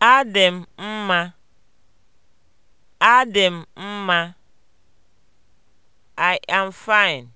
Adị m mma, Adị m mma. I am fine.